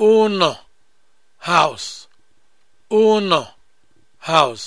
ụnọ house house